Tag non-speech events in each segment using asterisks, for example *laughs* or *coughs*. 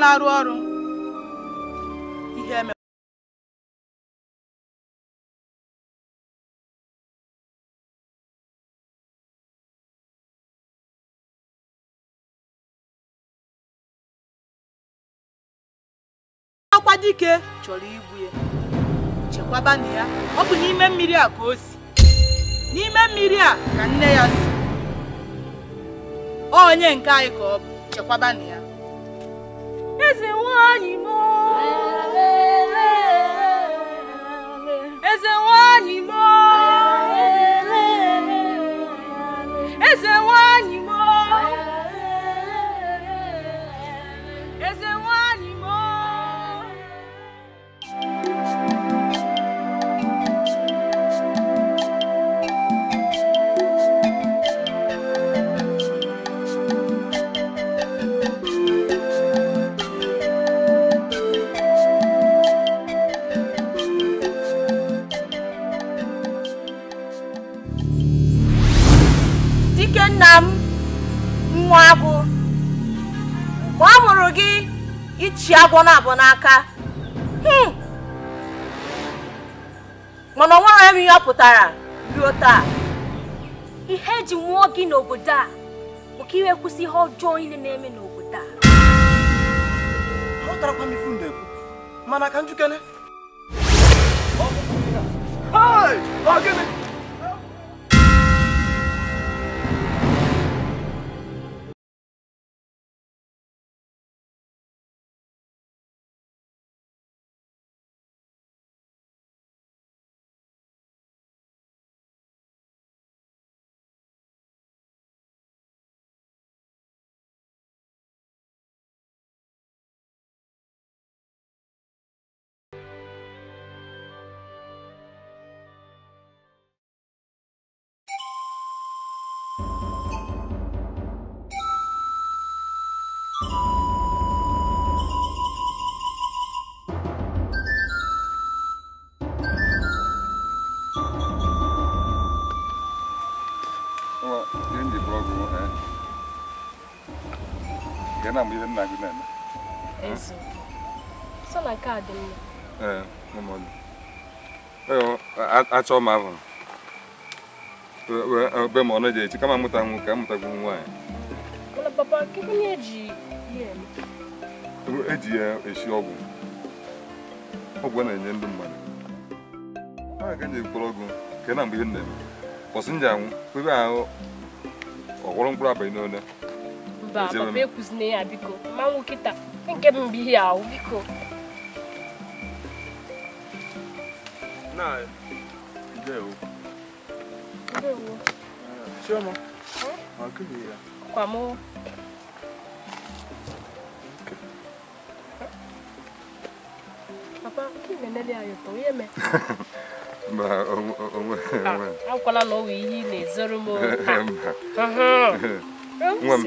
na-arụ ọrụ ihe eme akwa dike chọrọ igbu ya chekwaba na ya ọ bụ n'ime mmiri a ka o si n'ime mmiri a ka nne ya si onye nke anyị ka ọ bụ chekwaba na ya nna m nwa agụ mgbe a mụrụ gị ichi agwọ na-abụ n'aka hmm. mana ọ nwere m ihe pụtara ruo taa ihe eji nwụọ gị n'obodo a bụ ka iwe kwụsị ihe ọjọọ niile na-eme n'obodo a aghọtarakwa m ife m na mana ka njikere ọ gịnị na mgbe ibe nna gị na-eme achọ m ahụ e, e, e, be ma ọnụ ji echi kama mụta nwu ka mụtagwu nwaanyị eji ya esi ọgwụ ọgwụ na-enye ndị mmadụ a ga nye mkpụrụ ọgwụ nke na mgbe ihe na-eme kwọsị nji anwụ ebe ahụ ọgwụrụ mkpụrụ abalị n'one mba papa ekwuzina ya biko mmanwụ kịta nke m ahụ biko kwamoo papa na akwala na ọ wụ ihe ị na-ezoro m nwe m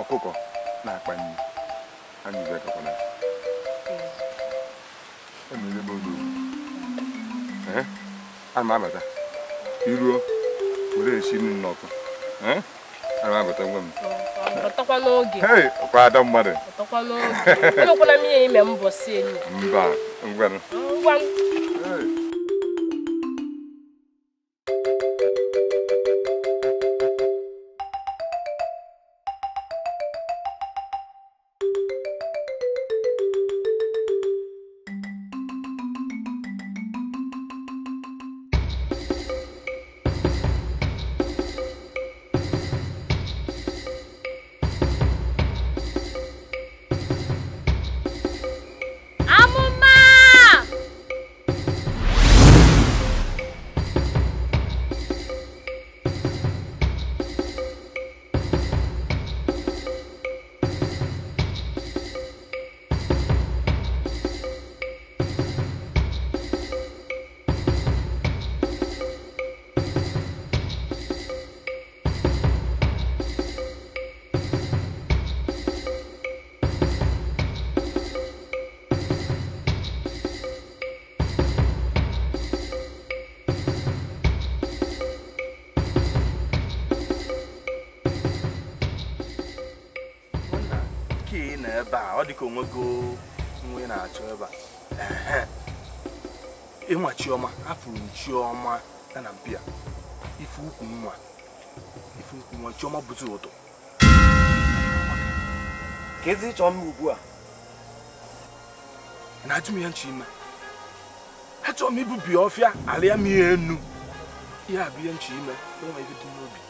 ọkụkọ na-akpa nri anyị ji akọkọna emerebe oge ee ana m abata iruo were esi nri n'ọkụ ana m abata nwe m kwada mmadụ mba ngwanụ enwego nwe na-achọ ebe a ịnwa chioma afụrụ chioma ya na mpia ife ukwu nwa ife ukwu nwa chioma bụzi ụtụ. ka ezi chọọ mma ugbu a na ajụm ya nchi ime achọrọ m ibubi ọfịa arịa m ihe enu ihe a bụ ihe nchi ime n'ụwa ife dị n'obi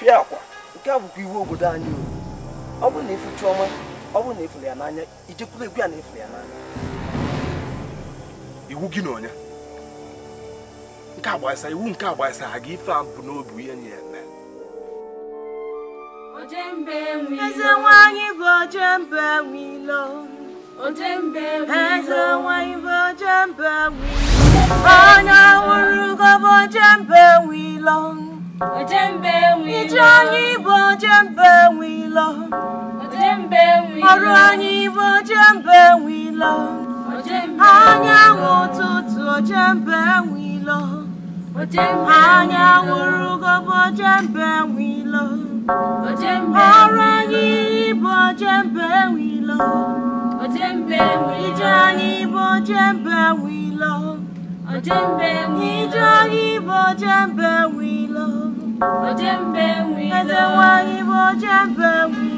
fịa akwa nke a bụkwa iwu obodo anyị o ọ bụrụ na ife chioma ọ bụrụ na efuru ya n'anya ijekwuru egwu ya na efuru ya n'anya iwu gị na onye nke agbasa iwu nke agbasa ha gị ife a bụ n'obi ihe nye ya eme eze nwanyị bụ ojembe nwilo eze nwanyị bụ mbe nwilo onye hụrụ gọbụ mbe nwilo ije anyị bụ mbe nwilo ọrụ anyị bụ ojembe nwilo anyanwụ ụtụtụ ojembe nwilo anyanwụ rugobe ojembe nwilo ọrụ anyị bụ ojembe nwilo ije anyị bụ ojembe nwilo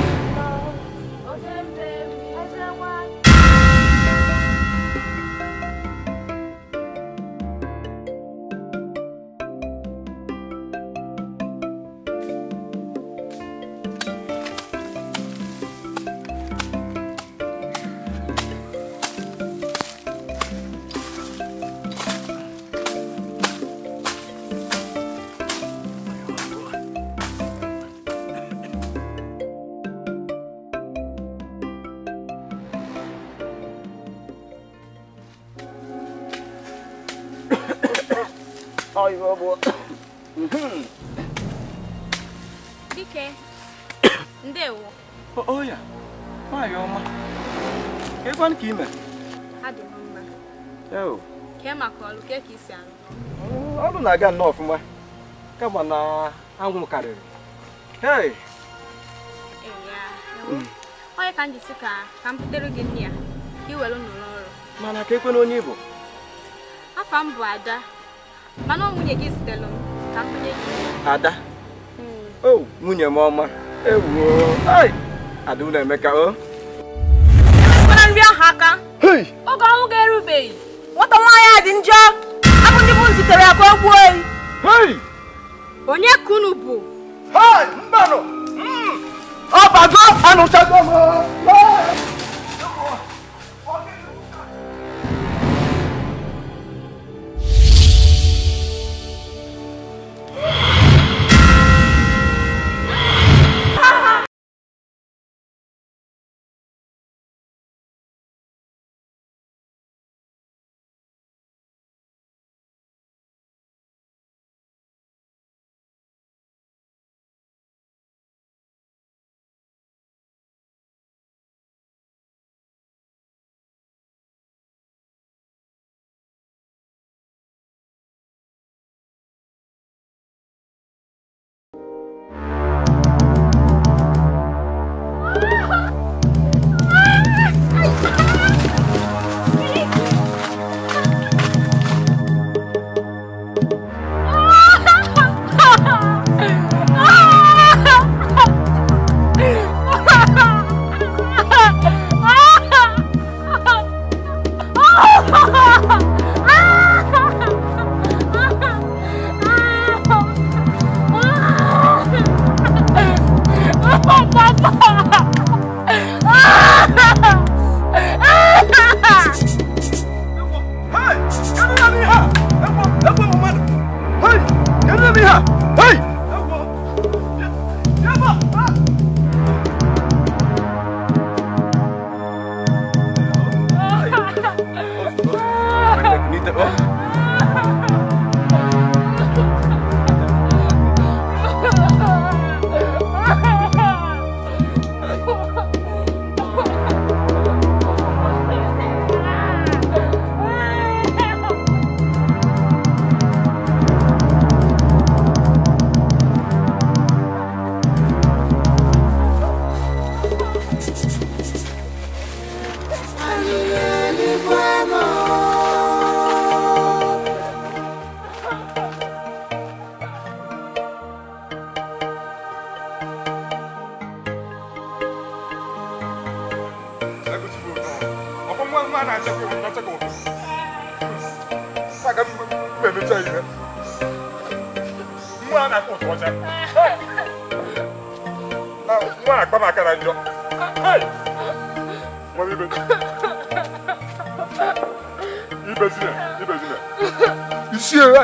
ọgbọ. Dike, *coughs* ndewo. Oya, oh, oh, nwaanyị ọma. Kekwan ka ime? Adị m mma. Eo. Kee maka ọlụ, kee ka isi arụ. Ọlụ na-aga nnọọ ọfụma, kama na anwụ karịrị. Hey. Onye ka m jisi ka ka m butere gị nri a, ka i were n'ụlọ ọrụ. Mana ka ekwe onye ị Afa m Ada. mana ọ nwunye gị zitere m ka m gị ada hmm. o oh, nwunye m ọma ewuo ada ụlọ emeka o ekwela nri ahụ aka oge ọnwụ ga-erubeghị nwata nwaanyị a dị njọ abụ ndị m zitere ya ka oyi onye ka unu bụ mbanụ hmm! ọbago anụchago m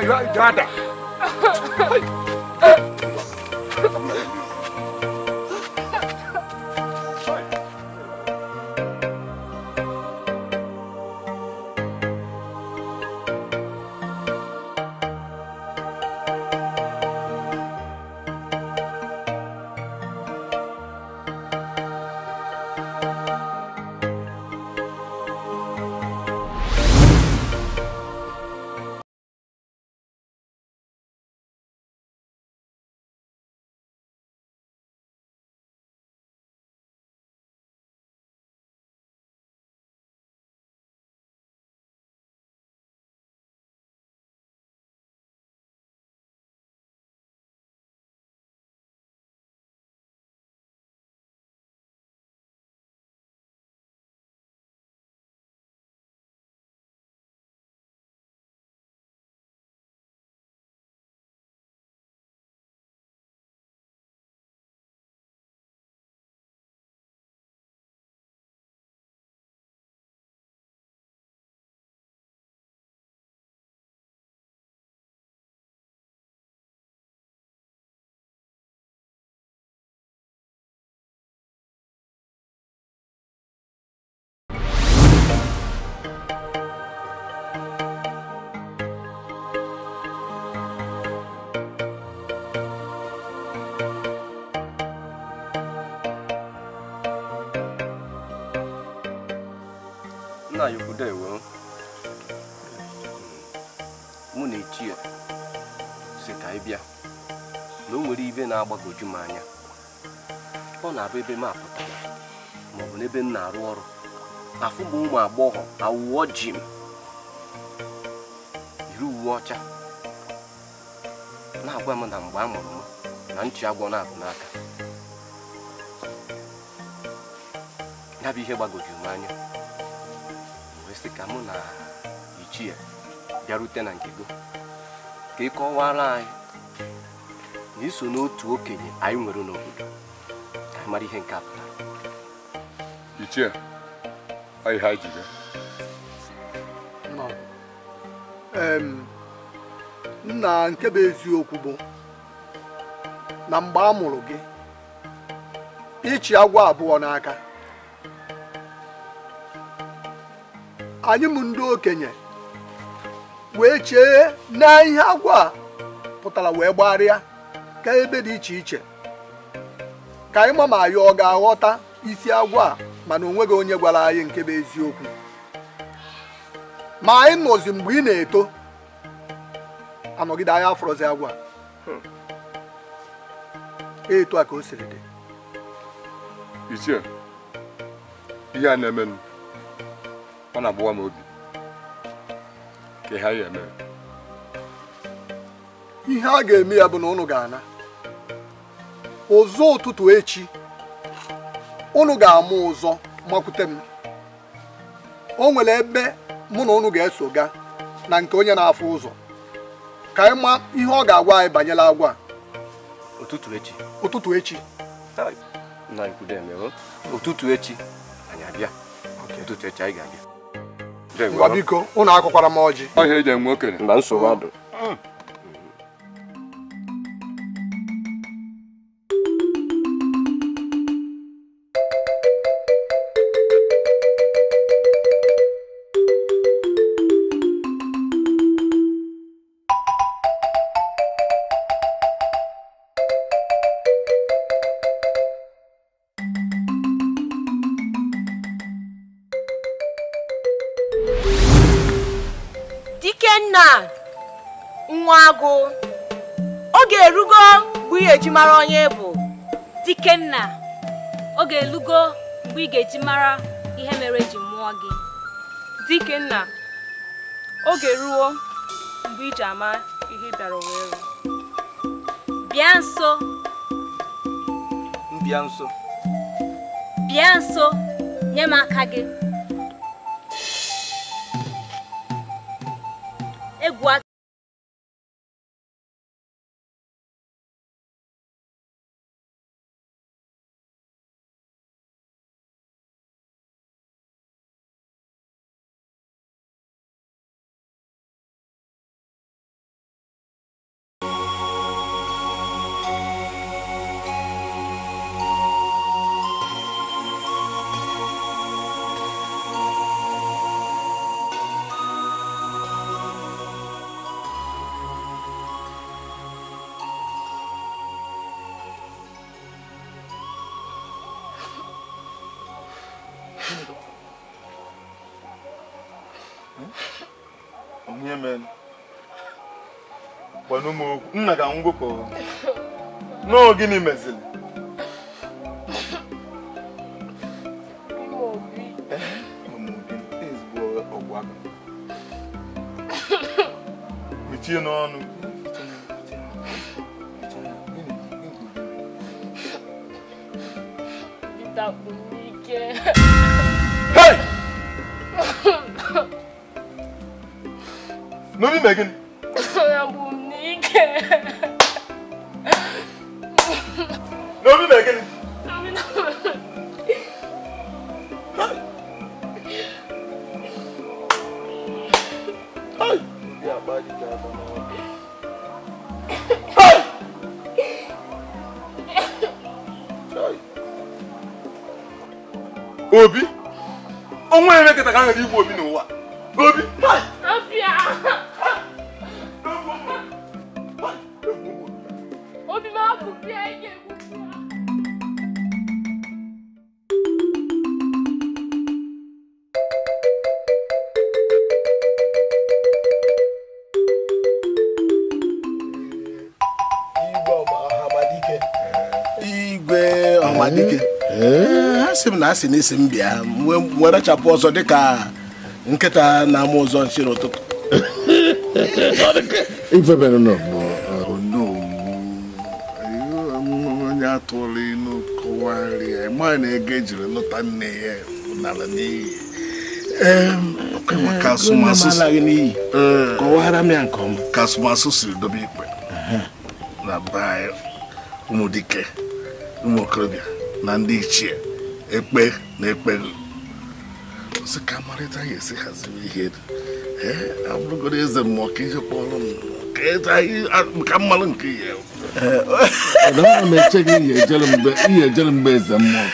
you are Dada. nna ya ukwu dewo mụ na echi ya si ka ị bịa na o nwere ibe na-agbagoju m anya ọ na-abụ ebe m apụtara maọbụ n'ebe m na-arụ ọrụ afụ bụ ụmụ agbọghọ awụọ ji m yiri uwe ọcha na-agwa m na mgbe a mụrụ m na nchi agwọ na-abụ n'aka ya bụ ihe gbagojuru m anya ka mụ na ichie bịarute na nke gị ka ị kọwara anyị na iso n'otu okenye anyị nwere n'obodo ka mara ihe nke a pụtara ichie anyị ha ji nna nke bụ eziokwu bụ na mgbe a mụrụ gị ịchị agwọ abụọ n'aka anyị mụ ndị okenye wee chee na ihe agwa pụtara wee gbagharịa ka ebe dị iche iche ka anyị ma ma anyị ọ ga-aghọta isi agwa mana o nweghị onye gwara anyị nke bụ eziokwu ma anyị nọzi mgbe ị na-eto anọgide anyị afọrọzi agwa eto a ka o siri dị ihe a na-emenụ ọ na-abụwa m obi ka ha ya eme ihe a ga-eme ya bụ na ụnụ ga-ana ụzọ ụtụtụ echi ụnụ ga-amụ ụzọ makwute m o nwere ebe mụ na ụnụ ga-eso ga na nke onye na-afụ ụzọ ka anyị ma ihe ọ ga-agwa anyị banyere agwa ụtụtụ echi ụtụtụ echi ụtụtụ echi anyị abịa ụtụtụ echi anyị ga-abịa biko ụnụ akụkwara m ọjị ọhịa eji enwe okenye na nsogbu adụ ga mara onye bụ Dikenna ọ ga-elugo mgbe ị ga-eji mara ihe mere ji mụọ gị Dikenna oge ruo mgbe iji ama ihe bịara wee bịa nso bịa nso bịa nso nye m aka gị gwakwana m okwu nna ka m gwụkọ gịnị mezili mechie n'ọnụ Hey! Nobody making obi onwe ya mekịta ka a nwere igbu obi na na si n'isi isi m bịa werechapụ ọzọ dịka nkịta na-ama ụzọ nchi n'ụtụtụ oh, onye atụrụ ịnụ kọwarịa na ego ejiri lụta nne ya nara n'iyi ka asụmasụ eh. siri dobe ikpe na be anyị ụmụ okorobịa na ndị ichie ekpe na ekpe ozi ka amarịta ya esi haziri ihe abụrụgoro eze mmụọ ka kpọrọ m ka e mmalụ nke m ihe ejere mgbe eze mmụọ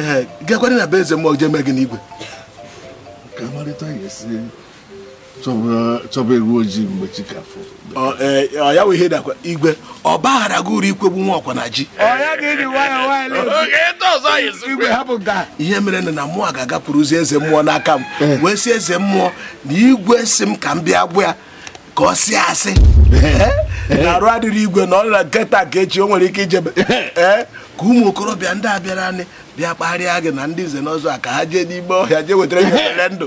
ee gakwara na be eze mmụọ jee mee gị n'igwe ka amarịta ya esi chọba ewu ojii mgbe chikafọ ọ ya wụ ihe dakwa igwe ọ baghara gị uru ikwegbu nwa ọkwa na ji ihe mere na na mmụọ ga-agapụrụzi eze mmụọ n'aka m wee sị eze mmụọ na igwe si m ka m bịa gbụ ka ọ sị asị *laughs* na arụ adịrị igwe na ọ na nke ka echi o nwere ike ijebe *laughs* ka ụmụ okorobịa ndị a bịara anyị bịa kparịa gị na ndị nze n'ọzọ a ka ha jee n'ime ọhịa jee wetara gị *laughs* ndụ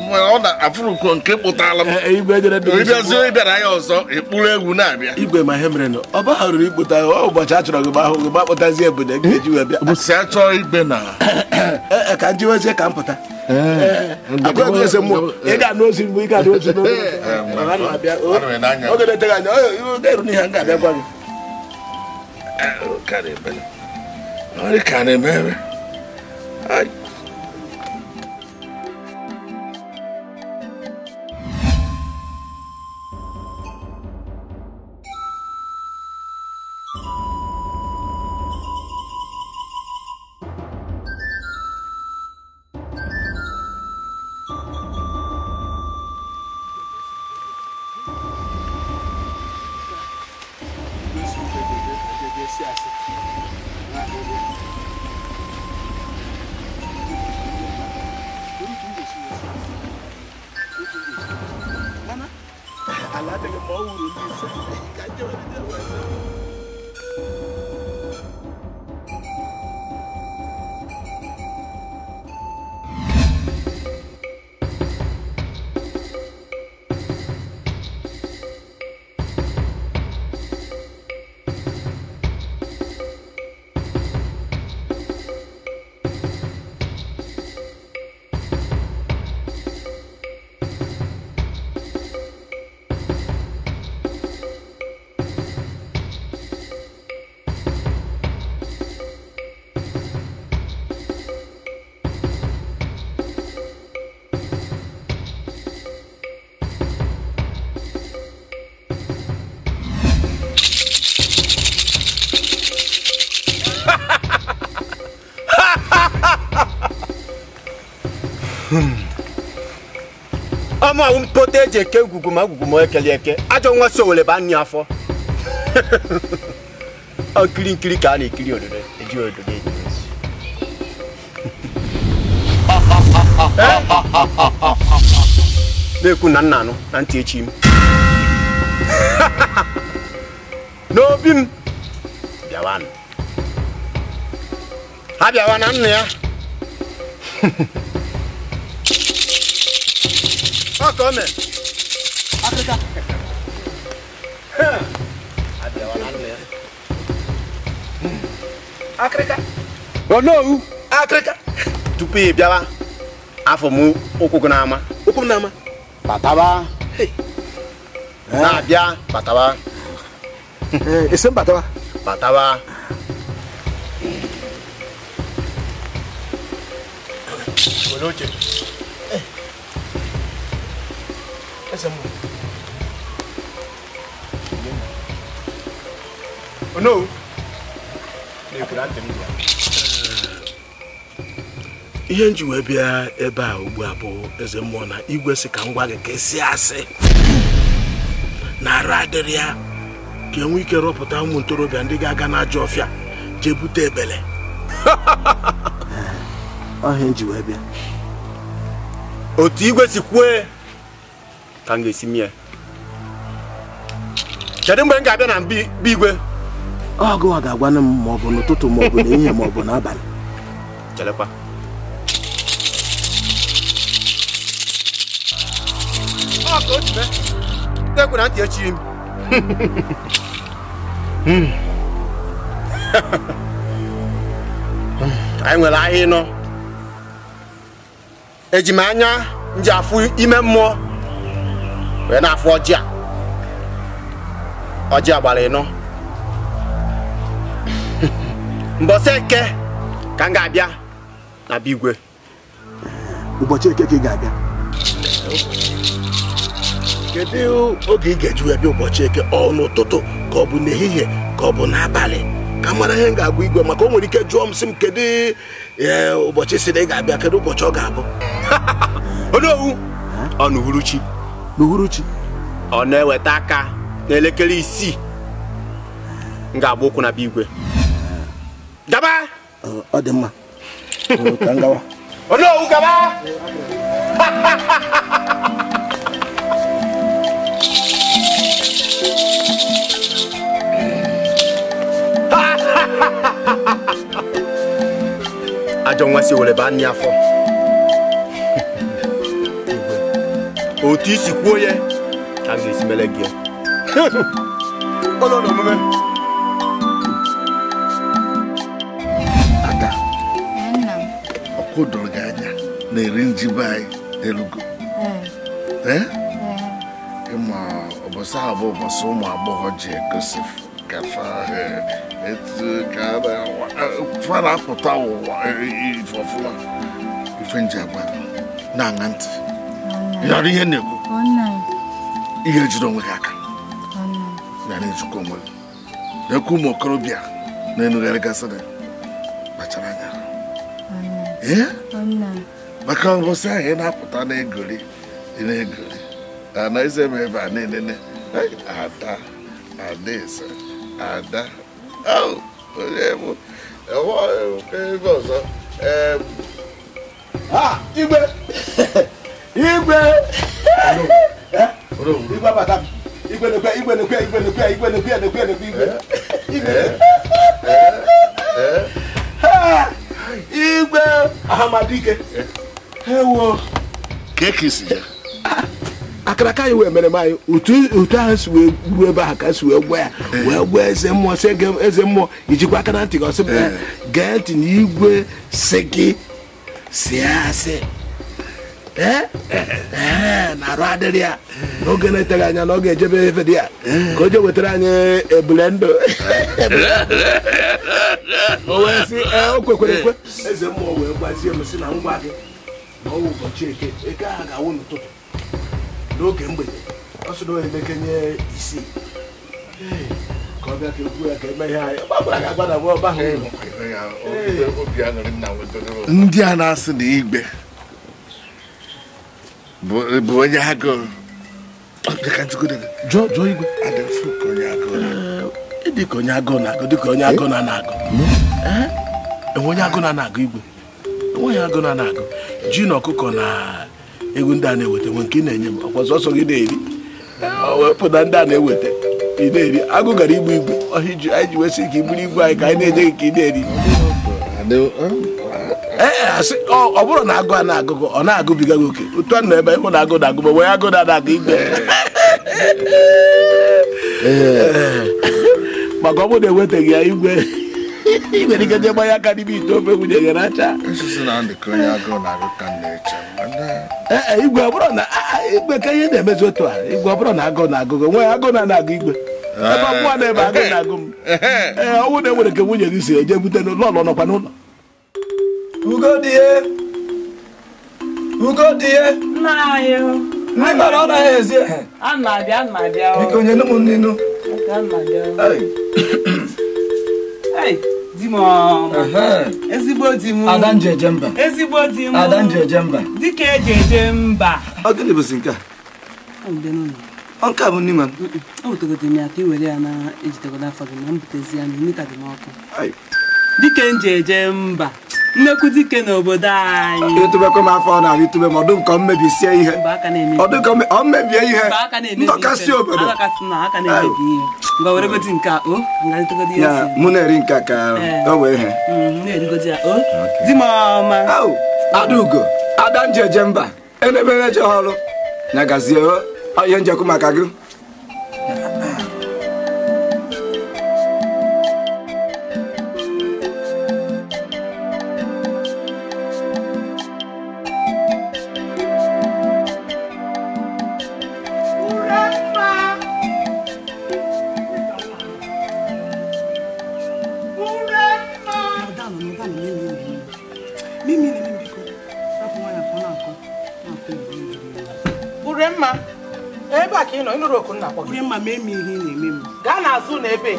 ọ na-afụrụ uko nke kpụtala m e, e, ịbịazie ịbịara ya ọzọ ịkpụrụ egwu na-abịa igwe ma ihe mere ọ bagharụrụ ikpụta ọ ụbọchị a chọrọ gị gbahụ gị gbakpụtazi ebodo e ga eji wee bịa si achọ chọọ igbe na *coughs* ka m jiwezie ka m pụta ị ga-anụ ozi mbụ ị ga-anụ ozi oge na-eteghị anya oge eru n'ihe m ga-abịa gwa gị ka na-emere ọmụ mpota eji eke ngwugwu ma ngwugwu ma ekele eke ajọ nwa so were ba nni afọ nkiri *laughs* nkiri ka a na-ekiri ododo eji ododo eji *laughs* na-ekwu na nna anụ na ntị echi m *laughs* n'obi m bịawanụ ha bịawa na nna ya ọtọ mẹ. Africa. Africa. Onowu. Africa. Tupu ị bịawa afọ m ụkwụ gị n'ama. Ụkwụ m n'ama. Na-abịa bataba. Ese m bataba. Bataba. Eh, e Were oche. ese oh, ah. ihe nji wee bịa ebe a ugbu a bụ eze mmụọ na igwe si ka ngwa gwa gị ka asị na ara adịrị ya ka enwe ike rọpụta ụmụ ntorobịa ndị ga-aga n'ajọ ọfịa jee bute ebele ọhịa *laughs* nji wee bịa otu igwe si ka m ga-esi mie kedu mgbe m ga-abịa na mba igwe ọgụ ọ ga-agwana m ma ọ bụ n'ụtụtụ ma ọ bụ n'ehihie ma ọ bụ n'abalị chelekwa ekwe na ntị echighị m hmm. *laughs* anyị nwere ahịa ịnọ ejimanya m anya m ji afụ ime mmụọ wee na-afụ ọjị a ọjị a gbara ịnọ *laughs* mbọsị eke ka m ga-abịa na ụbọchị eke ka ị ga-abịa kedu oge ị ga-eji bịa ụbọchị eke ọ n'ụtụtụ ka ọ bụ n'ehihie ka ọ bụ n'abalị ka mara ihe m ga-agwa igwe maka o nwere ike jụọ m sị m kedu e, ụbọchị si na ị ga-abịa kedu ụbọchị ọ ga-abụ *laughs* owu ọ na uhuruchi n'uhuruchi ọ na-eweta aka n'elekere isii m ga-agba ụkwụ na bigwe gaba ọ dị mma ka m gaba *laughs* ajọ nwa si were baa nne afọ otu isi kwuo ya a ga-esi mere gị *laughs* ụlọ omume ada ọkụ dọrọ gị anya na-eri njibe anyị elugo ịma ụbọchị ahụ bụ ụbọchị ụmụ agbọghọ ji egosi e, etu ka e, fa na-apụta ụwa e, ifọfụla ife nji na-aṅa ntị ịghara ihe na-ekwu ihe jiri onwe gị aka ghara ijikọ onwe gị na-ekwu ụmụ okorobịa na-enugharị gasịrị kpachara anya maka ngosi ahụ ị na-apụta na-egori ị na-egori anaghịzi eme ebe a na-enene ada adaeze ada onye bụ enweghị ebe ọzọ igwe igwe igwe igwe igwe ahamadike eh. ewo kekisi ya akaraka anyị wee mere m anyị otu ahụ si wee gburu ebe ahụ ka si wee gwa ya eh. wee gwa eze mmụọ si eze mmụọ ijikwa aka na ntị gị ọsị eh. gee ntị na igwe Eh? Eh? Eh, na-arụ adịrị ya n'oge na-eteghị anya na ọ ga-ejebe efe dị ya ka o je wetara anyị ebule ndụ o o kwekwere ekwe eze mmụọ wee gbazie m si na ngwa gị na ọwụ ụbọchị eke eke ahụ ga-awụ n'ụtụtụ n'oge mgbede ọ sị na ka ọ bịa ka egwu ya ka eme na ọba ndị a na-asị na igbe bụ onye agụụ jụọ igwe dịka onye agụụ na-agụ dịka onye agụụ na-agụ enwe onye agụụ na-agụ igwe enweghị agụụ na-agụ ji na ọkụkọ na egwu ndị a na-eweta nwe nke ị na-enye m ọkwa gị na-eri wepụta ndị a na-eweta ị na-eri agụ gara igbu igwe ọhịa iji anyị ji wesị ka iburu igwe anyị ka anyị na-enye gị ka ị na-eri Eh, eh, ọ bụrụ na agụ a na-agụgụ ọ na-agụbiga gị oke otu a nọ ebe ịhụ na agụ na agụba wee agụ na-adagụ igbe eh. maka ọ bụrụ na enwetaghị ya igwe ị nwere ike je gbanye aka n'ime ite ofe nwunye gị racha ee igwe bụrụ na igwe ka ihe na-emezi otu a igwe bụrụ na agụ na agụgụ nwe agụ na na-agụ igwe ebe bụwa na ebe agụ na agụ m ee ọnwụ na enwere ka nwunye gị si eje bute n'ụlọ ọlọ nọkwa n'ụlọ ugodie ugodie ndị mara ọ naghị ezi ehe biko nye nụ m nnenu ezigbo di m ada mba ezigbo di m ada nji eje mba dịka eji eje mba ọ gịnị bụzi nke a nke a bụ nne nwa m o butegodo m ya ka i were ya na-ejitegodo afọ gị ma m butezi ya na imita dị n'ọkụ dịka nji e eje mba nnekwu dike n'obodo anyị ịtụbekwa m afọ na itụbe ma ọdụ nke ọ mmebisie ihe ọ mmebie ihe ndọkasị obodo mụ na-eri nke ka eh. o wee ihe adaugo adanji eje mba enebere eje ọrụ na gazie ihe njekwu maka gị dị mma ma eme ihe ị na-eme m gaa n'azụ na ebe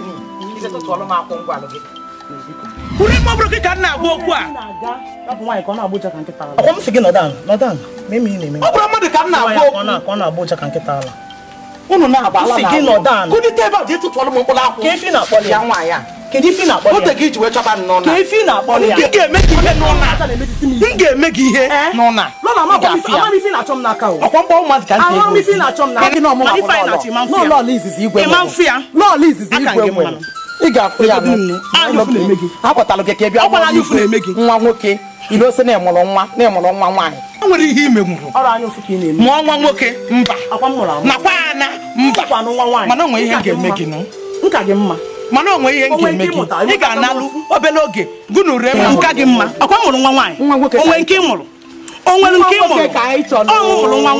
izetụtụọlụ m akwụ ngwalụ gị kwuru ime ọ bụrụ gị ka m na-agba okwu a ọkwa m si gị nọdan nọdan ma eme ihe na-eme ọ bụrụ mmadụ ka m na-agba okwu ọ na-agba ụja ka nkịta ala unu na-agba ala na-agba kụdịta ebe a ji tụtụọlụ m mkpụrụ akwụ ka efi na-akpọlị ya nwaanyị a kedu ife na ya otu wee chọba na na-akpọ ya m ga-eme gị ihe n'ụna ga-eme gị ihe ka na-achọ m n'aka izizi igwe lọọlọ izizi ga gị ị bịa nwa nwoke ilose na ịmụrụ nwa na nwa nwaanyị nwere ihe ime gwuru mụọ nwa nwoke mba nakwa ana mba mana o nwere ihe ga mana onwe ihe nke eme gị ị ga-analụ obere oge gụ ure nka gị mma ọkwa mụrụ nwa nwaanyị onwe nke ị mụrụ onwere nke ị mụrụ ọnwụ mụrụ nwa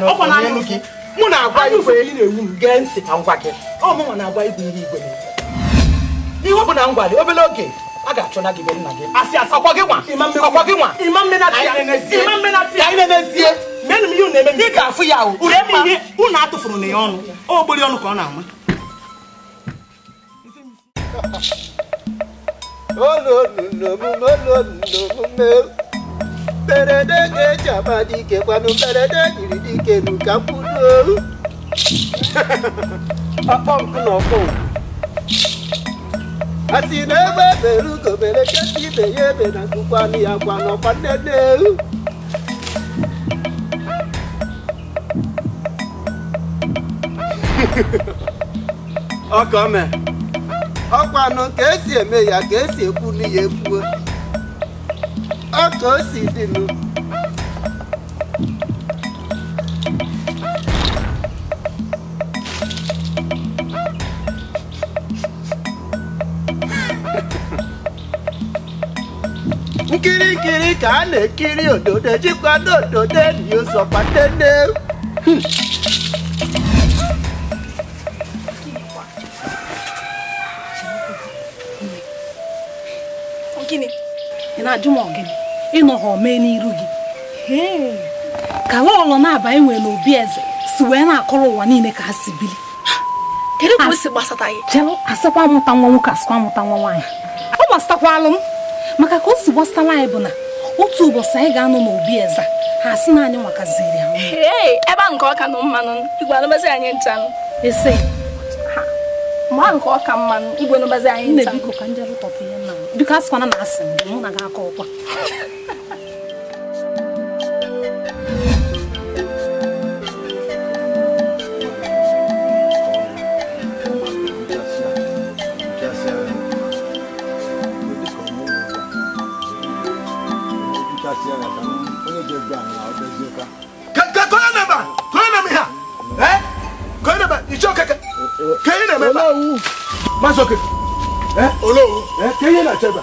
nwaanyị e mụ na-agwa igwe na-ewu m gee ntị ka ngwa gị ọmụnwa na-agwa igwe ihe igwe ihe bụ na ngwa obere oge a achọna gị be nna gị asị asị ọkwa gị nwa menu m ihe unu eme ị ga-afụ ya o ure m ihe unu atụfuru na ya ọnụ ogbori ọnụ ka ọ na-ama mberede ga-eji ama dike kwanụ mberede jiri dike nu ka mkpụrụ ọkpọ nkụ na ọkpọ a sị na ebe ebere ugo mere kesi ibe ya ebe na nkụkwanụ ya kwanụ ọkwa nnene *laughs* ọkọ mẹ ọkọ àná kèésì èmi ìyá kèésì ekú níye ekú ọkọ òsì dìlú. *laughs* nkirikiri ka a na-ekiri òdòdó jikwa n'òdòdó enyi ụzọ kpatene na ajụ m ọgịnị ịnọ ha omee n'iru gị ka lọlọ na-aba enwe n'obi eze si wee na-akọrọ ụwa niile ka ha si bili asịkwa mụta nwa nwoke asịkwa mụta nwa nwaanyị ọ gbasatakwalụ m maka ka o si gbasatara anyị bụ na otu ụbọchị anyị ga-anọ n'obi eze ha asị na anyị nwakaziri ya ebe a nke ọka na mmanụ igwe anụbazi anyị nchanụ ese mgbe a nke ọka mmanụ igwe anụbazi anyị nchanụ biko asịkwana na asị mgbe mụ na gị aka ọkwa okay. olowu ka na-achebe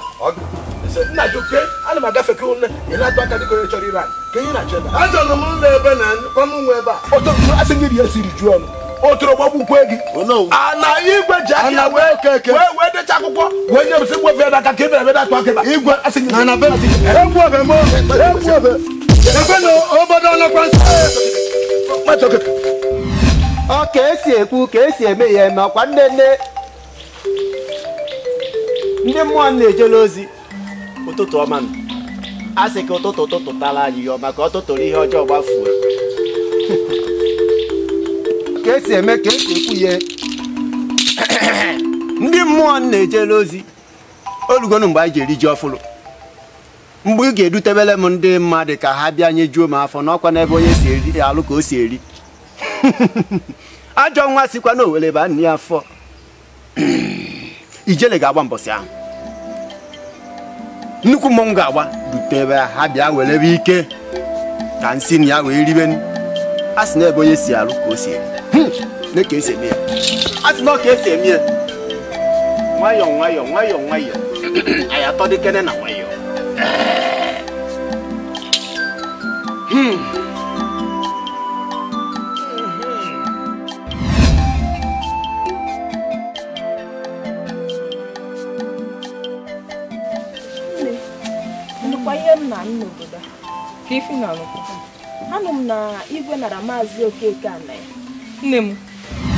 nnajuke ana m agafe ke ụlọ ịlatụ aka dịka onye chọrọ ire anyị na-achebe achọrọ m ụlọ ebe na kwamụ nwe ebe a ọtọ asị gị ya siri ju ọnụ otoro gbagbukwe gị ala igwe ji aka wee wee decha akwụkwọ wee nye aka ka ebe aka igwe asị gị egwu m egwu ebe na obodo ọnọkwa nsọ ka esi ekwu ka esi eme ya eme nne nne ndị mmụọ na-ejela ozi ụtụtụ ọma a sị ka ụtụtụ ụtụtụ tara anyị ihe ọma ka ọ ihe ọjọọ gbafuo ka esi eme ka esi ekwu ya *clears throat* ndị mmụọ na-ejela ozi olugonu mgbe anyị ji eri ji ọfụrụ mgbe ị ga-edutebele m ndị mmadụ ka ha bịa juo m afọ n'ọkwa n'ebe onye si eri alụ ka o si eri *laughs* ajọ nwa sikwa na owele ba nne ya afọ *clears throat* ijele ga-agba mbọsị ahụ nnukwu mmọnwụ ga-agba dutebe ha bịa werebe ike ka nsị na ya wee ribe a sị na ebe onye si arụ ka o si eme ka esi eme ya a sị na ọka esi eme ya nwayọọ nwayọọ hmm. nwayọọ nwayọọ anyị atọ dịkene na nwayọọ ka ifi na ọnụkọ anụ m na igwe nara maazị okeke ana ya nne m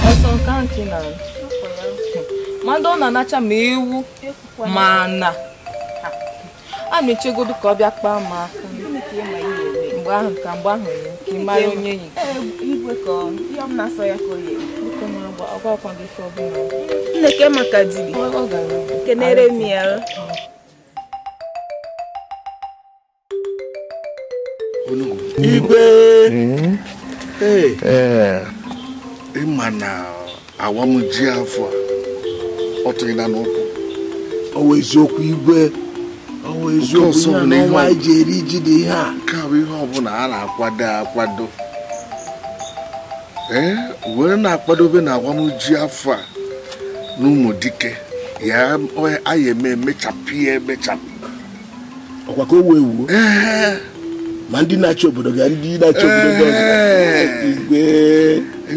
ọsọ nke ahụ ka mmadụ ndị ọ na-anacha ma ewu ma na a na-echegodo ka ọ bịa kpaa m aka mgbe ahụ ka mgbe ahụ ya ka ị mara onye ya nneke maka dibia m ya Hmm. Eh. ịma na awa ji afọ ọ tụghị na n'ụkwụ ọwụ eziokwu igwe ọwụ eziokwu ihe n'ọnwa anyị ji eri ji dị ihe a Nke bụ ihe ọbụla a na-akwado akwado ee were na-akwadobe na awa ji afọ a na ụmụ dike ya anyị eme emechapụ ya emechapụ ọkwa ka o wee wuo ma ndị na-achị obodo ga ndị na-achị obodo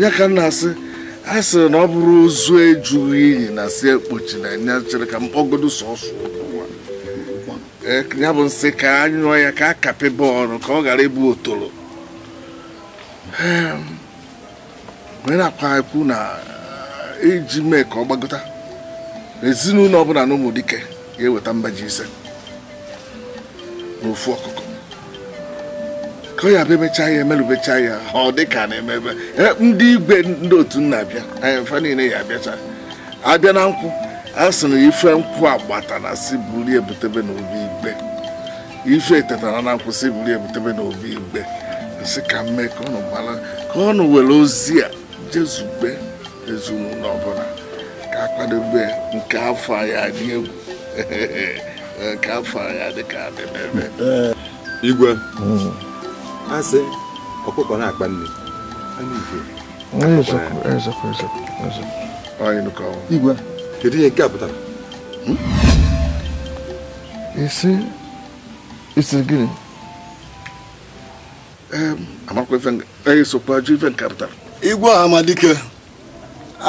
ga ka m asị a sịrị na ọ bụrụ ozu ejughị iyi na si ekpochi na nya chere ka mkpọgodo sọsọ ya bụ nsị ka a ya ka a kapị bọọlụ ka ọ ghara ịbụ otoro ehm, na akwa ekwu na e, iji mee ka ọ gbagota ezinụlọ ọbụla na ụmụdike dike ga-eweta mbaji ise n'ofu ọkụkọ ka ya abịa emechaa ya emerụbecha ya ọ dị ka na-emebe e, ndị igwe ndị otu nna abịa anyị e, mfa niile ya abịacha abịa na nkwụ a sị na ife nkwụ agbata na si buru ebutebe n'obi igbe ife tetara na nkwụ si buru ebutebe n'obi igbe sị ka mme ka ọnụ gbara ka ọnụ were ozi a jezube ezinụlọ ọbụla ka akwadobe nke afọ ya dị egwu nke *laughs* afọ ya dị ka adịmebe igwe mm. asị ọkụkọ na-akpa nne igwe kedu ihe nke a pụtara isi hmm? isi gịnị amakwa ife nke pụtara igwe amadike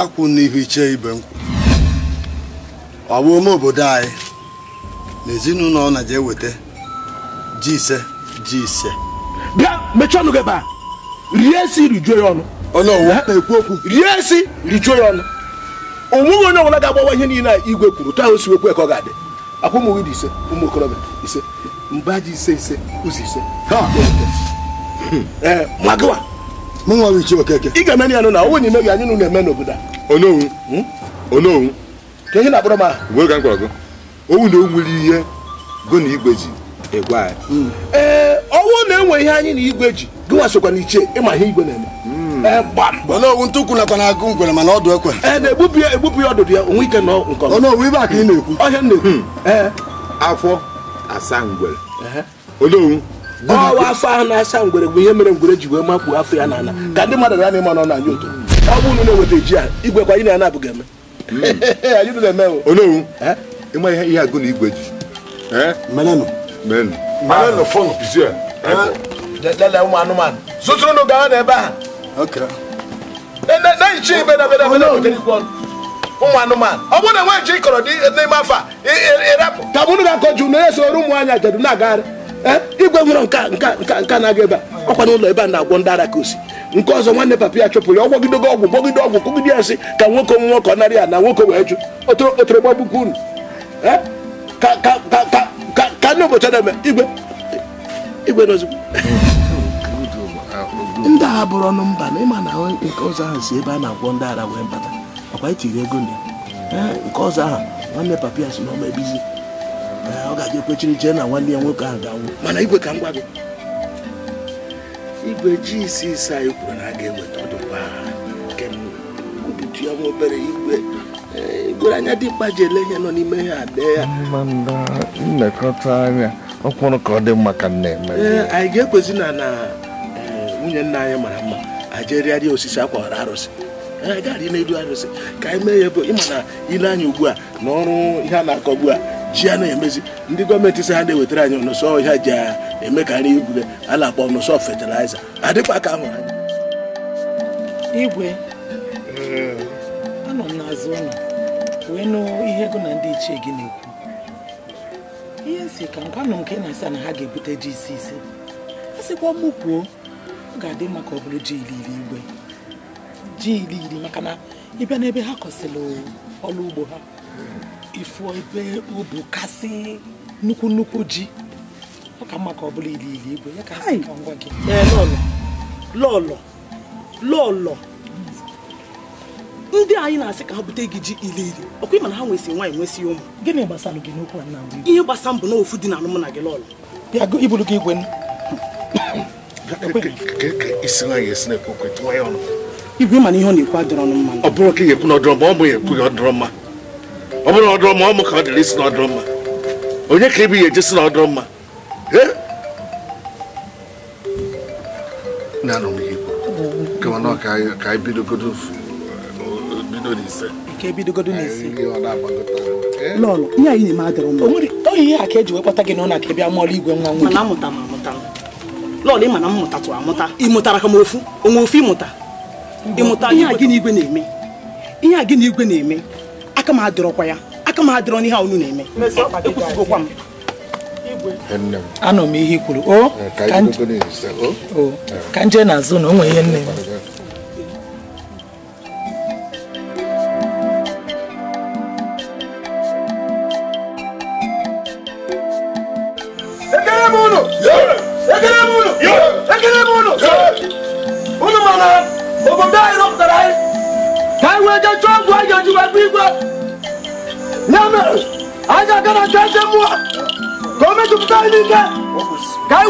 akwụ n'ihu iche ibe nkwụ ọ bụ ome obodo anyị na ezinụlọ ọ na-eje eweta ji ise ji ise bịa mechie ọnụ gị ebe a rie esi rijuo ya ọnụ rie esi rijuo ya ọnụ onweghị onye ọbụla ga-agbawa ihe niile a igwe kwuru tụ ahụ siwekwe ka ọ ga-adị akwa ụmụ nwunye ise ụmụ okorobịa ise mba ji ise ise ụzọ ise hmm. eh, ị ga-eme ya nụ na onwe n'ime gị anyị nụ na-eme n'obodo onowu. Hmm? onowu ka ihe na-akpọrọ m ahụ owu na o nwere ihe go na igwe ji ọnwụ na-enwe ihe anyị na igwe ji gịnwa sokwa na iche ịma ihe igwe na-eme hmm. eh, ntụkwu nakwa na agụ ngwere mana ọdụ ekwe ee eh, na-egbubi ya egbubi ya ọdụdụ ya onwe ike na nke ọnọwu ibe ka ị na-ekwu ọhịa na-ekwu hmm. eh. afọ asa ngwere odowu ọwa afọ ahụ na-asa ngwere bụ ihe mere ngwere ji wee makpuo afọ ya na-ana hmm. ka ndị mmadụ ya na-eme nọ anyị otu ọ bụ unu na-eweta ji ahụ igwe kwa *laughs* anyị na abụghị eme eme odowu ịma ihe agụ na igwe ji lele ụmụ anụmanụ a na ụmụ oh, oh, anụmanụ ọ bụrụ na nwe ji ịkọrọ eh, n'ime afọ ga akọ jụ na ya soro ụmụ anya jedu na-agagharị eh, igwe nwere nka nka nka nka na-aga ebe a ọkwa n'ụlọ ebe a na-agwọ ndị ara ka nke ọzọ nwanne papa ya chụpụrụ ya ọgwụ gwọgide ọgwụ kụgide ya sị ka nwoke onwe nwoke ọ narị ya na nwoke wee jụ otoro ka ndị ụbọchị na-eme igwe igwe n'ozugbo ndị agha bụrụ ọnụ mba na ịma na nke ọzọ ahụ si ebe a na-agwọ ndị ara wee bata makwa itiri e ego na nke ọzọ ahụ nwanne papa ya si na ọma ebizi ọ ga-abịa kwechiri jee na nwanne ya nwoke ahụ ga-anwụ mana igwe ka m gwa gị igwe ji isi ise anyị kwuru na a ga-eweta ọdụ mgbe agha nke m obitu ya nwa obere igwe gwere anya dịmkpa ji ele ihe nọ n'ime ya adee ya nnekọta anya ọkwụrụ ka ọ dị mma ka nna eme anyị ga-ekwezi na na eh, nwunye nna anyị mara mma ajerịarịa osisi akwara arụsị n'elu arụsị ka anyị mee ya bụ ịma na ile anya ugbu a na ọrụ ihe a na-akọ ugbu a ji a na-emezi ndị gọọmenti si ha na-ewetara anyị ọnụsọ ihe ji emekarị igwure a na-akpọ ọnụsọ fetiliza adịkwa ka ahụrụ anya igwe wee nụ ihe ego na ndị ichie gị na-ekwu ihe nsi ka ngwanụ nke na-asa na ha ga-ebute ji isi ise a sịkwa mụ kwuo ọ ga-adị maka ọbụla ọ bụrụ ji iri igwe ji iri maka na ịbịa n'ebe ha kọsịrị ọrụ ugbo ha ifụọ ebe ubu kasị nnukwu nnukwu ji ọ ka mma ka ọ igwe ya ka ka ngwa gị lọlọ lọlọ lọlọ ndị anyị na-asị ka ha bute gị ji iri ọkwa ịmana na ha nwesị nwaanyị nwesị ụmụ gịnị gbasara gị n'okwu a na ihe gbasa mbụ na dị na gị lọlụ bịa iburu gị igwe igwe mana ihe ọ na-ekwu adịrọ mma ọ bụrụ ka ị ekwu na mma ọ bụ ya mma ọ bụrụ mma ọ ka ọ dịrị isi na ọdịrọ mma onye ka na mma na-anụ m lọlọ ihe a ka eji wee gị na ọ na-aka bịa mụọla igwe nwa nwoke. mụta mụta lọlọ ị mana m mụtatụ amụta mụtara ka m ofu onwe ofu ịmụta ịmụta ihe a gị na igwe na-eme ihe a gị na igwe na-eme aka m adịrọkwa ya aka m adịrọ n'ihe a unu na-eme ekwusịgokwa m anọ m ihe i kwuru o ka nje na-azụ na o nwere ihe nne m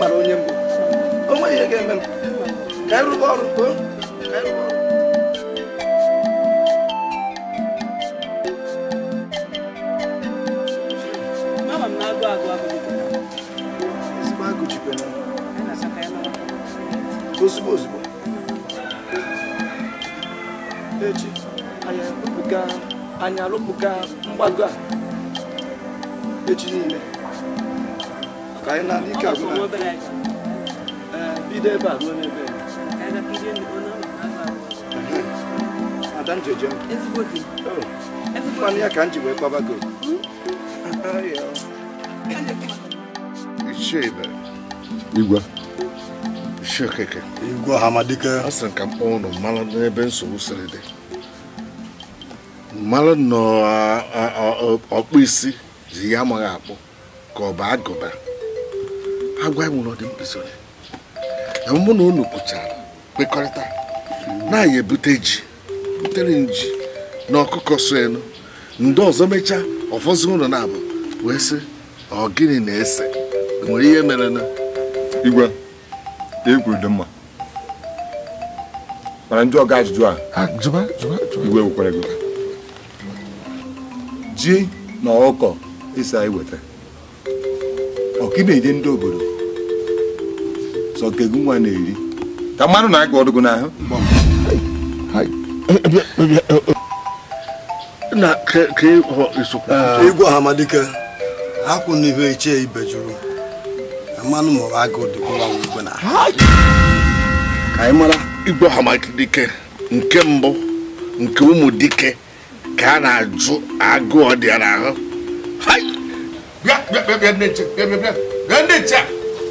mkpara onye mbụ o nweghị ihe ga-eme m ka anyị rụba ọrụ ka anyị rụba ọrụ ozugbo ozugbo mgbago a echi niile ka anyị na ike agwụ bido ebe a ada njeje mmanụ ya ka m ji wee igwe ọ sịrị ka m kpọọ ụnụ mmanụ n'ebe nsogbu siri dị mmanụ nọ ọkpụ isi ji ya amaghị akpụ ka ọ bụ agụba agwa dị enwere ọdịmpịsịrị mụ na unu kpụchara kwekọrịta na anya ebute ji butere nji na ọkụkọ so elu ndị ọzọ mechaa ọfọzi ụlọ na-abụ wee sị ọ gịnị na-ese nwere ihe mere na igwe egwu dị mma mana ndị ọga ajụjụ a ah, igwe gwekwara gị ji na ọkọ ịsa iweta ọ gị na ndị obodo sọ ka nwa na-eri ka mmadụ na-aga ọdụgụ n'ahụ igwe amadike n'ibe mmanụ agụ na ka anyị mara igwe amadike nke mbụ nke ụmụ dike ka a na-ajụ agụ dị n'ahụ bịa bịa bịa bịa bịa bịa bịa Oké. maar Apa? Apa?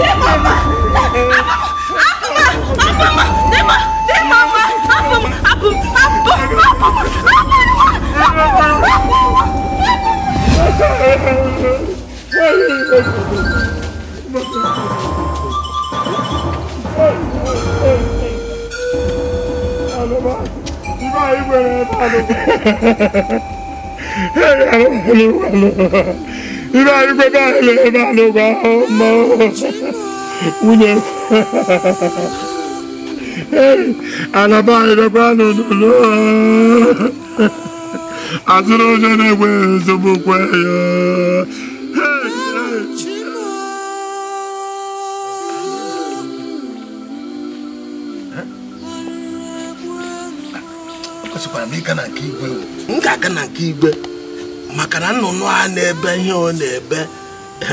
Apa? Apa? Apa? Apa? Apa? Irú àyíkó báyìí lè bá ló bá ọmọ wúlò. Àlàbá ìdọ́gba lòdòdó. Àti lóṣèlú ẹgbẹ́ ìṣòbò pẹ̀yọ́. kwesịkwara m ịga na nke igwe m ga-aga na nke igwe maka na nnụnụ a na-ebe ihe ọ na-ebe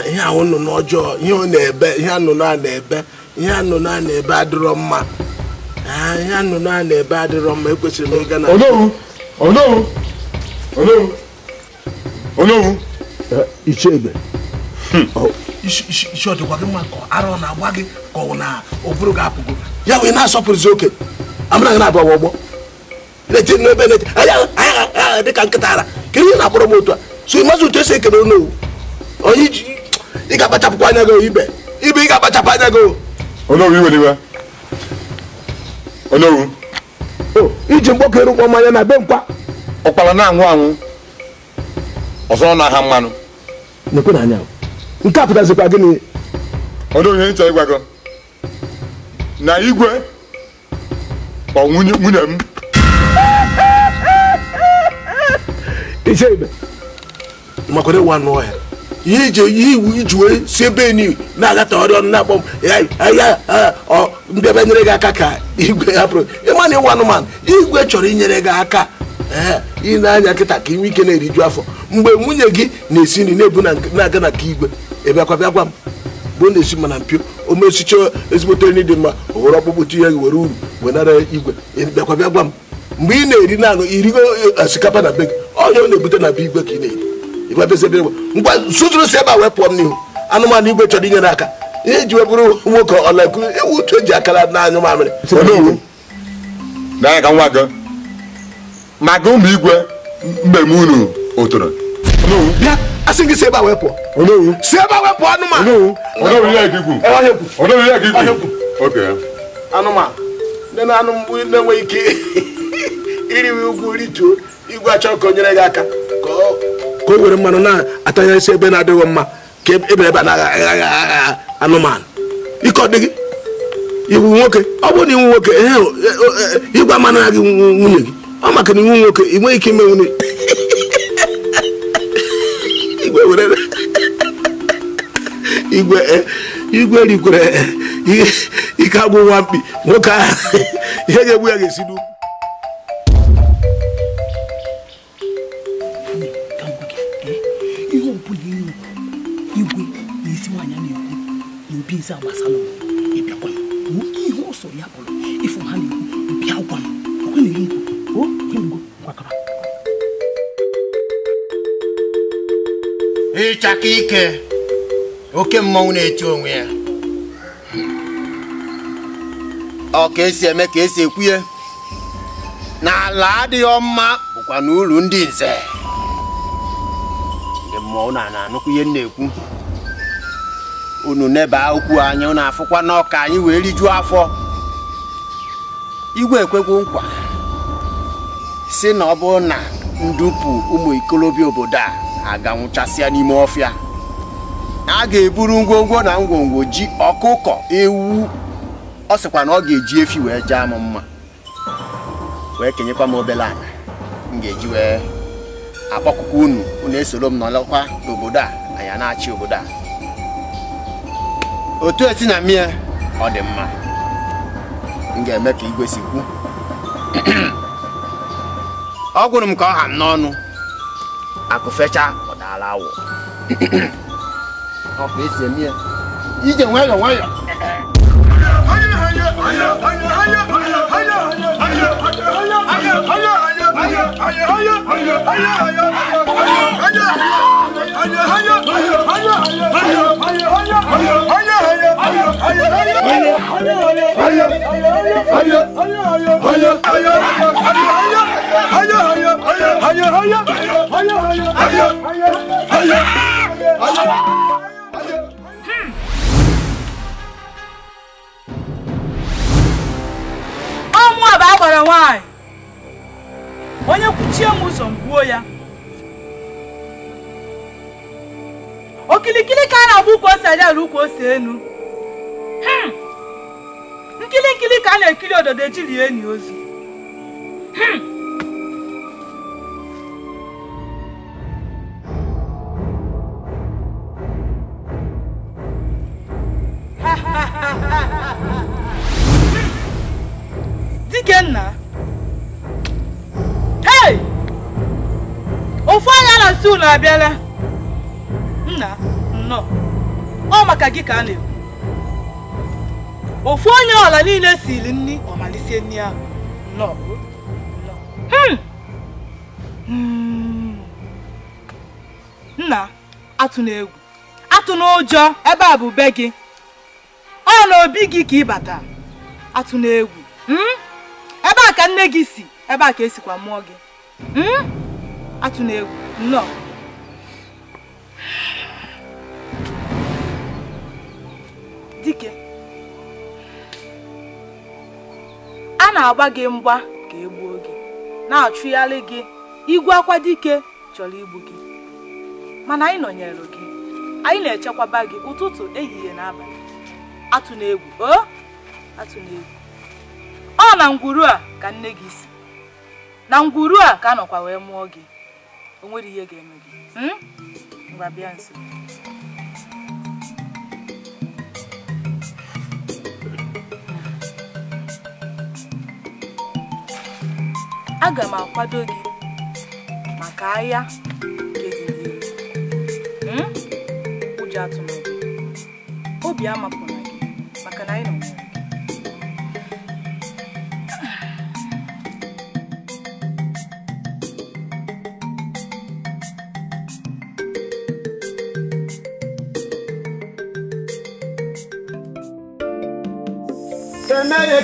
ihe ahụ nnụnụ ọjọọ ihe ọ na-ebe ihe nnụnụ a na-ebe ihe nnụnụ a na-ebe adịrọ mma ah, ihe a na-ebe adịrọ mma ekwesịrị m na ichebe isi ọdịkwa gị mma ka arọ na-agba gị ka na ụbụrụ gị apụgo ya wee na-asọpụrụzi oke gị na na-eti n'ebe na-eti aya agha dị ka nkịta ara ka ihe na-akpọrọ m otu a so ịmazi otu esi ekele onowu onye ị ga-akpachapụkwa anya gị ibe ibe ị ga-akpachapụ anya gị onowu iweliwe onowu iji mgbọkọ erukwa mmanya na be nkwa ọkpara na-anwụ anwụ ọzọ na ha mmanụ na-ekwe na anya nke a pụtazikwa gịnị onowu ihe ncha ịgwa gị na igwe kpọ nwunye m iche ibe maka na ịwa n'ọhịa ihe iji iwu iji wee si ebe na-agata ọrịa ọnụ na-akpọ m ahịa mbịaba nyere gị aka ka igwe hapụrụ ịma na ịwa anụmanụ igwe chọrọ inyere gị aka ị na-anya nkịta ka inwe ike na-eriju afọ mgbe nwunye gị na-esi nri na-ebu na-aga na nke igwe ịbịakwa bịa m bụ na-esi mana mpio omesicha mesicha ezigbote nri dị mma o were ihe tinye gị were uru wenara igwe ịbịakwa bịa m mgbe ị na-eri naanị irigo asikapa eh, na be gị ọnya ọ na-ebute na be igwe ka ị na-eri ibebezebe ngwa sụtụrụ si ebe a wee pụọ m n'ihu anụmanụ igwe chọrọ inyere aka ihe ji wee bụrụ nwoke ọlaku ewu uche ji akara n'anyụ mamịrị n'anya ka nwa gị maka ụmụ igwe mmemme unu otoro bịa asị gị si ebe a wee pụọ si ebe a wee pụọ anụmanụ anụmanụ ndị na-anụ mgbu na-enweghị ike iriwe ugwu rituo igwe achọ ka nyere gị aka ka o were mmanụ na-atanyesi ebe na-adịghị mma ka ebe ebe na-agha anụmanụ ike ọ dịghị iwu nwoke ọ bụrụ na iwu nwoke e, e, igwe ya gị nwunye gị ọ maka na iwu nwoke ị nweghị ike ime nwunye *laughs* e, igwe rikwere ike agwụ nwa mkpi nwoke ahụ *laughs* ihe ga-egbu ya ga-esi n'ugwu sɛ abasa no ɛbia kɔn woki ho so yɛ akɔno ɛfo ha ne bia kɔn ɔkɔ ne yinko o kɛngo kwakaba ịchaka ike oke mmọnwụ na-eti onwe ya ọ ka esi eme ka esi ekwuye na ala adịghị ọmma bụkwa n'uru ndị nze ndị mmọnwụ na na-anụkwu ihe m na-ekwu unu neba okwu anyị na afụkwa na anyị wee rijuo afọ igwe ekwego nkwa si na ọ bụrụ na ndupu ụmụ ikolobịa obodo a aganwụchasịa n'ime ọfịa a ga-eburu ngwongwo na ngwongwo ji ọkụkọ ewu ọ sịkwa na ọ ga-eji efi wee jee m mma wee kenyekwa m obere ala m ga-eji wee akpọkụkọ unu unu esoro m nọlọkwa n'obodo a anyị na-achị obodo a otu esi na mmịa ọ dị mma m ga-eme ka igwe si kwu ọ gwụrụ m ka ọ ha n'ọnụ akụ fecha ọ daala awọ ọ ka esi eme ya ije nwayọọ nwayọọ Hanya, hanya, hanya, hanya, hanya, hanya, hanya, hanya, hanya, hanya, hanya, hanya, hanya, ọmọ àbá àgbọ̀rọ̀ wọn onye kwuchie m ụzọ m gbuo ya okilikili ka a na-agba ukwu ose ukwu ose enu hmm. nkili ka a na-ekiri ododo ejili enyi ozu hmm. *laughs* nna. ofu anya na si unu abịala nna nnọọ ọ maka gị ka a na-ekwu ofu onye ọla niile siri nri ọmalisie nri ahụ nnọọ hmm. Hmm. nna atụ na egwu atụ ụjọ ebe a bụ be gị ọ na obi gị ka ịbata atụ na egwu hmm. ebe a ka nne gị si ebe a ka esikwa mụọ gị atụna egwu nnọọ dike a na-agba gị mgba ka e gbuo gị na-achụgharị gị igwe akwa dike chọrọ igbu gị mana anyị nọnyere gị anyị na-echekwaba gị ụtụtụ ehihie na abalị atụna egwu o atụna egwu ọ na ngwuru a ka nne gị si na ngwuru a ka anọkwa wee mụọ gị o nwere ihe ga-eme gị ngwa hmm? bịa nso aga m akwado gị maka ahịa nke dị n'ihu hmm? ụjọ atụmatụ obi amapụna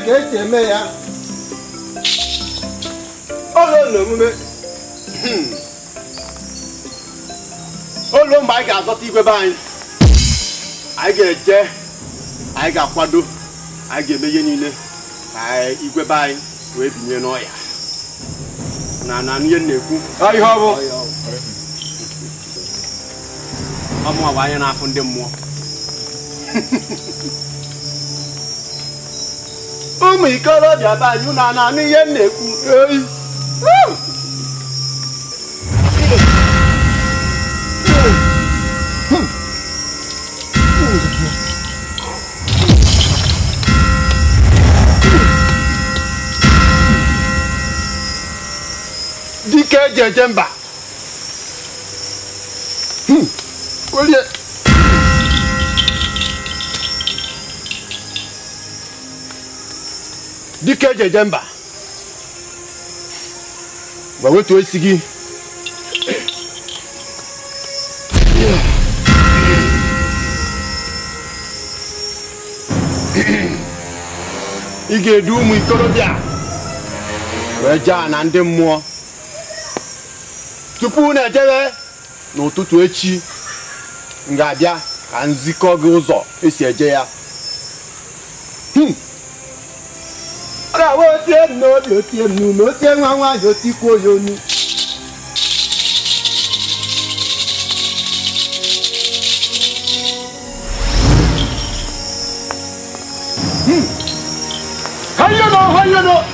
ka esi eme ya ụlọ na omume hmm. mgbe anyị ga-azọta igwe be anyị anyị ga-eje anyị ga-akwado anyị ga-eme ihe niile ka igwe be anyị wee binye n'ọya na na ihe na-ekwu ihe ọ bụ ọmụwa bụ anya na-afụ ndị mmụọ *laughs* ụmụ ikorobịa be anyị na ananụ ihe m na-ekwu oyi dike jejemba eji eje mba ma wetu isi gị ị ga-edu ụmụ ikorobịa wee jaa na ndị mmụọ tupu na ejebe n'ụtụtụ echi m abịa ka nzikọ gị ụzọ esi eje ya hmm. ọ̀rọ̀ àwọn tí ẹ̀ nù ọ́ bí ó ti ẹ̀ nù ní ó ti ẹ̀ wọ́n wá yóò ti yóò nu.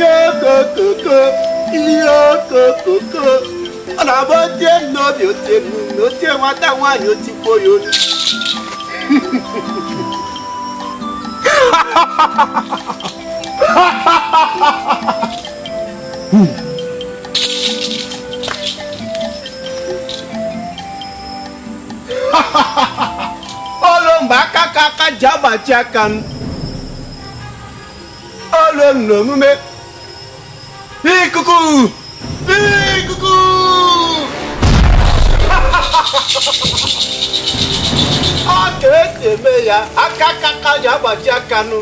yokokoko yokokoko ọ̀nà bó tiẹ̀ nọ mi ò tẹ̀ mú mi ò tẹ̀ wọn táwọn àyàn ti bóyọ ni. olomba kaka ka jaba jaka m olomna Hé, coucou Hé, coucou ọ ka esi eme ya aka aka ka ji agbaji aka nụ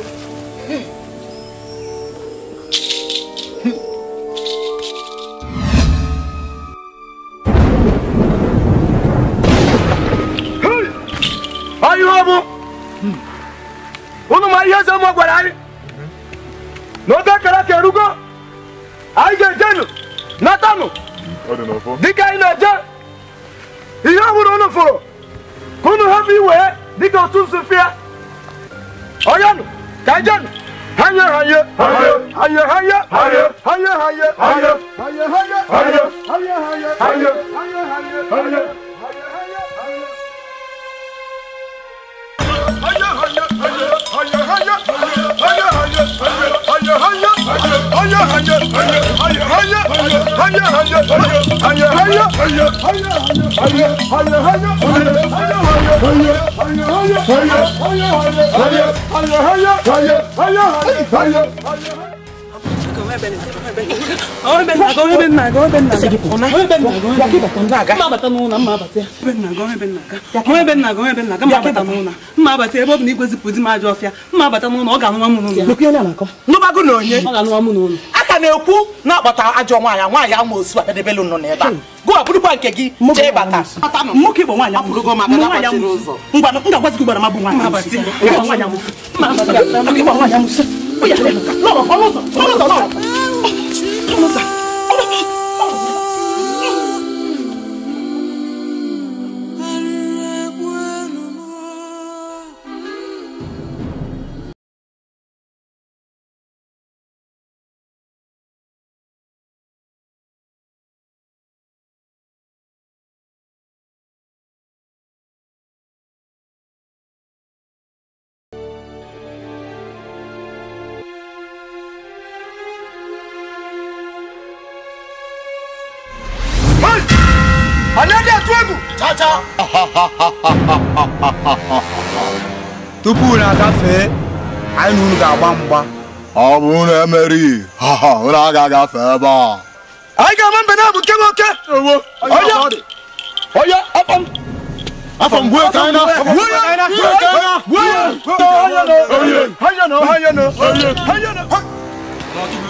ihe ọ bụ hmm. unu ma ihe eze mụ gwara anyị hmm. na oge kara ka erugo aije jenu natanu dịka ị na-eje ihe ọ bụla unu fụrụ ka unu hapụ iwe dịka otu nsufịa onyenụ ka jenu hanye hanye hanye hanye hanye hanye hanye hanye hanye hanye hanye hanye hanye hanye hanye hayır hayır hayır hayır hayır mma abata ebe ọ bụ na igwezipụ di m ajọ ọfịa mma abata n'ụlọ ọ ga-anụwa m n'ụlọ na onye aka ka na-ekwu na akpata ajọ nwaanyị nwaanyị ama osu akadebelu nọ n'ebe a gụ abụrụkwa nke gị jee bata nwoke bụ nwaanyị ngwa m ga gị gbara mabụ nwaanyị 頼むぞ ọcha tupu unu agafee anyị na unu ga-agba mgba ọ bụ unu emerighị unu agaghị agafe ebe a anyị ga-ama mbe na-abụ nke nwoke onye m afọ na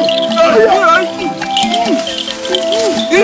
我他妈紧张！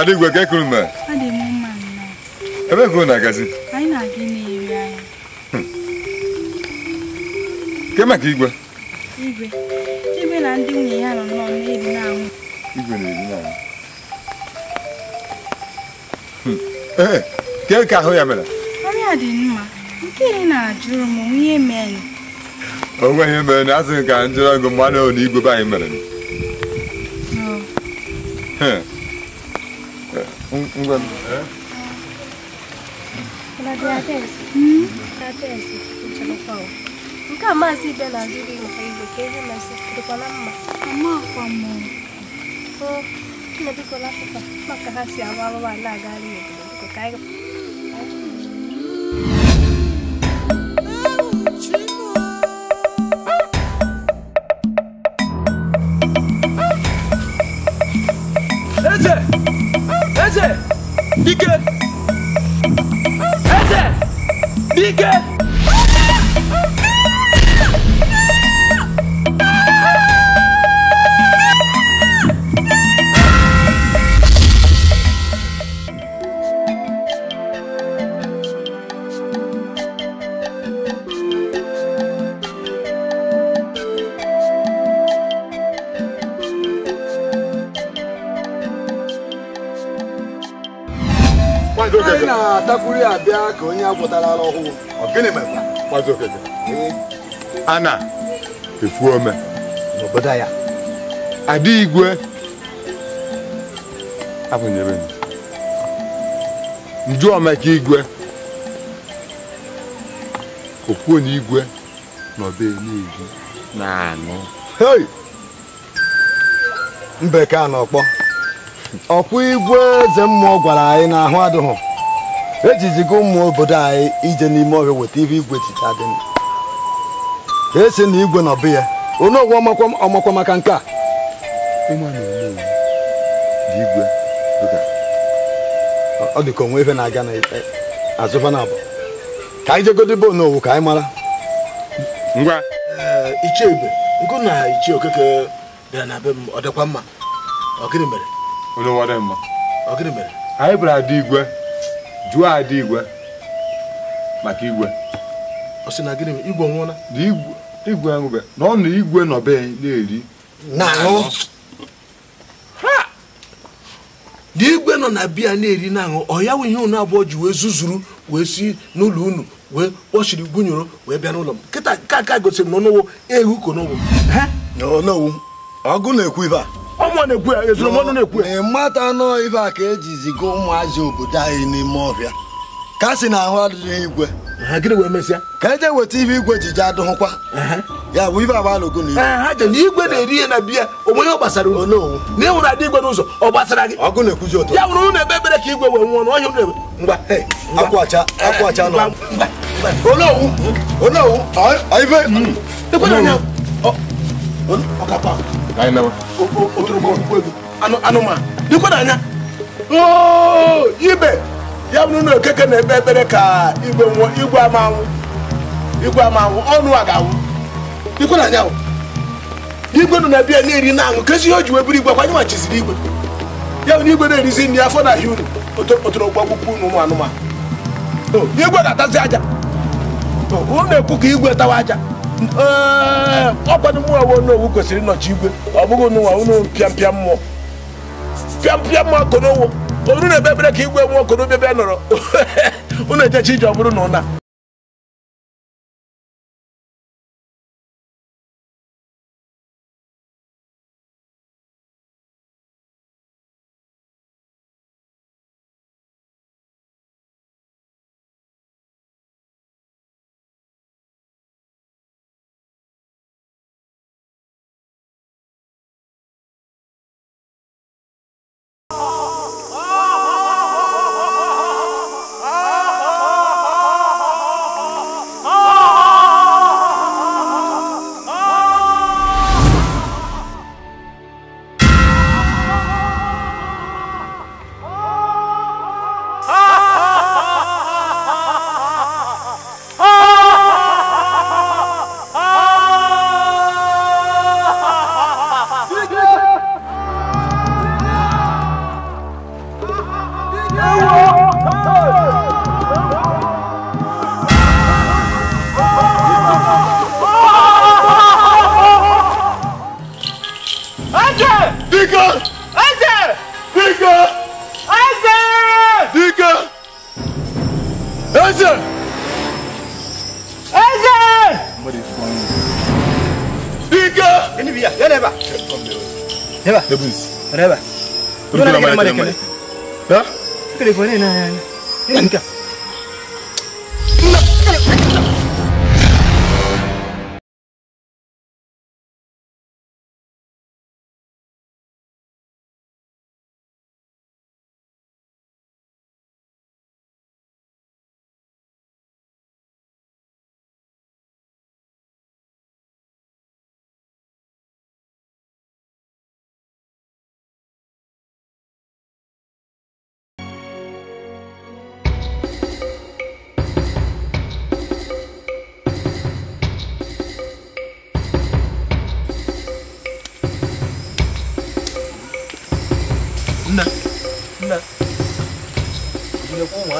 Adịgwe ka ekuru mma. Ọ dị Ebe na-agazi? Anyị na-aga na-eri hmm. maka igwe? Igwe. na ndị nwunye ya nọ na na-eri na hmm. ka ahụ ya mere? dị mma. na-ajụrụ m O nweghị ihe mere na asịghị ka njụrụ ọgụ mmadụ igwe be anyị mere. Hmm. Unggan. kama si bela nzuri mfaidokeje na tuko na mama mama lá mama ko tunapokola kwa makahasi amalo wana gari yetu tuko kaiga Eze, bir Eze, Heze, bir gel. takwuru ya bịa ka onye agwụtara ara ọhụụ a na-efu ome n'obodo ya adị igwe abụnyere nju omeka igwe okwuonye igwe n'ọbụenigwe na-anụ mbeke Mbe ka n'ọkpọ! ọkpụ igwe eze mmụọ gwara anyị na ahụ adịghị ejizigo ụmụ obodo anyị ije n'ime ọhịa weta ihe igwe jicha dị esi na igwe na ọbụ ya onye ọgwụ ọmakwa maka nke a igwe ọ dị ka onwe ife na-aga n'azụfa na e, abụ ka anyị jegodebe n'owu ka anyị mara ngwa ichebe nkụ na ichie okeke bịara na be m ọ dịkwa mma ọ gịnị mere anyị bịara ada igwe jụọ ada igwe maka igwe ọ sị na gịnị igwe na igwe nwụbe na ọ na igwe nọbe na-eri dị igwe nọ na biya na-eri na-aṅụ ọ ya nwe ihe unu abụọ ji wee zuzuru wee si n'ụlọ unu wee kpọchiri gụnyere wee bịa n'ụlọ m kịta nke aka gosiri m n'ọnụwo ehu kon'ụgwọ ọgụ na-ekwu ibe a ọnwa na-ekwu ya ezuromọnụ na-ekwu ya mata anọ ife a ka eji ziga ụmụazị obodo anyị n'ime ọbịa ka si na ahụ adịghị igwe gịnị wee ka eje weta ife igwe ji je adụghụkwa ya bụ ife agbalụgo na igwe ha na igwe na-eri na biya ọ gbasara unu na adị igwe n'ụzọ ọ gbasara gị ọgụ na-ekwuzi ụtọ ya wụrụ ụlọ ebe ebere ka igwe wee nwụọ na ọkapa anụmanụ dịkwa n'anya ibe ya bụrụ na okeke na-ekpe ekpere ka igwe amanwụ igwe ama ama anwụ igwe anwụ ọnụ a ga-awụ dịkwa n'anya igwe nọ na bịa na-eri na aṅụ kezi ihe o ji wee bụrụ igwe kwanye machiziri igwe ya bụ na igwe na-erizi nri afọ na ahịa unu otorokpu akwụkwọ unu ụmụ anụmanụ igwe ga-atazi aja unu na-ekwu ka igwe tawa aja Eh, ọkwanụ mụ awụ n'owu kwesịrị ịnọchi igwe ọ bụghị nụwa ụnụ pịampịa mmụọ pịampịa mmụọ konowo olu na-ebe ebere ka igwe nwụọ konobe bịa e nọrọ ụnụ *laughs* ejechi ije ọ bụrụ na ụna 那个。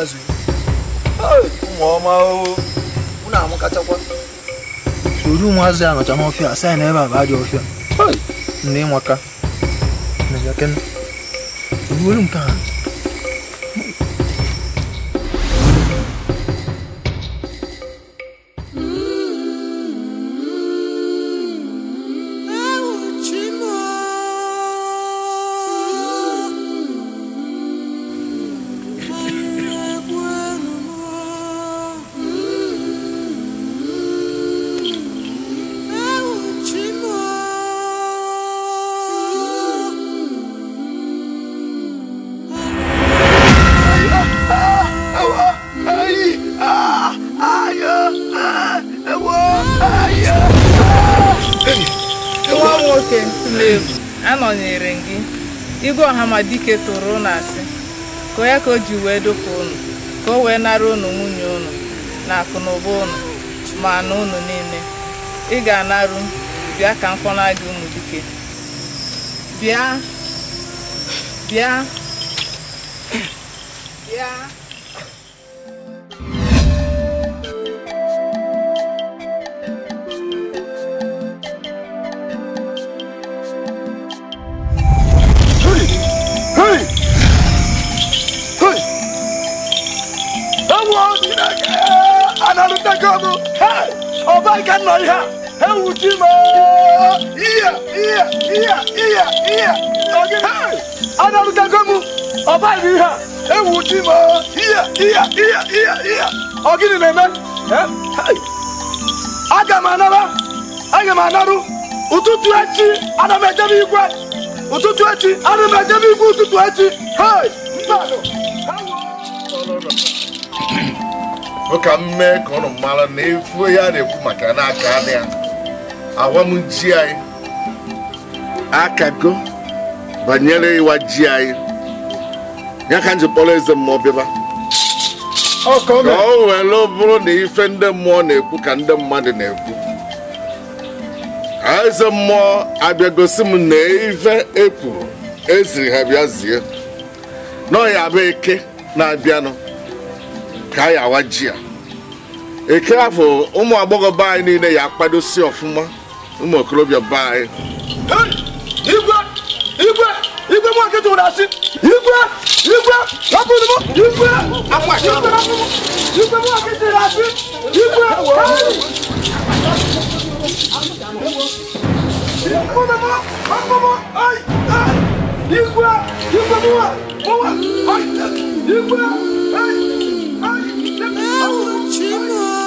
azụ ụmụọma ụnụ soro ụmụazụ ya nọcha n'ọfịa asa na a bụ ajọ ọfịa nne ịmaka na jakena ruo nke ha Chineke tụrụ unu asị ka onye ka o ji wee dụpụ unu ka o wee nara unu nwunye unu na akụnụba ụnụ unu ma na unu niile ị ga-anarụ bịa ka na gị ụmụ dike bịa bịa bịa na lu ta ko mu hey o ba ji mo iya iya iya iya iya o ge hey ana lu ta ko mu o ji mo iya iya iya iya iya o ni me hey aga ma na aga ma na ụtụtụ echi ana m ejebe igwe ụtụtụ echi ana m ejebe igwe ụtụtụ echi hei mmadụ ka m mee ka ọnụ mara na efu ya na-ekwu maka na aka dị ya agwa m ji anyị akago banyere ịwa ji anyị ya ka m kpọrọ eze mmụọ bịaba ka o were bụrụ na ife ndị mmụọ na-ekwu ka ndị mmadụ na-ekwu eze mmụọ abịa abịagosi m na ife ekwuru eziri ha bịa zie n'ọya bụ eke na-abịanụ ka ayɛ awagyea ekeafo ụmụ agbọghọ baa niile ya akpado si ọfụma ụmụ okorobịa baa igwe igwe igwe mụ akịta ụra asị igwe igwe rapụrụ m igwe igwe mụ akịta ụra asị igwe igwe igwe igwe igwe Não, Timão!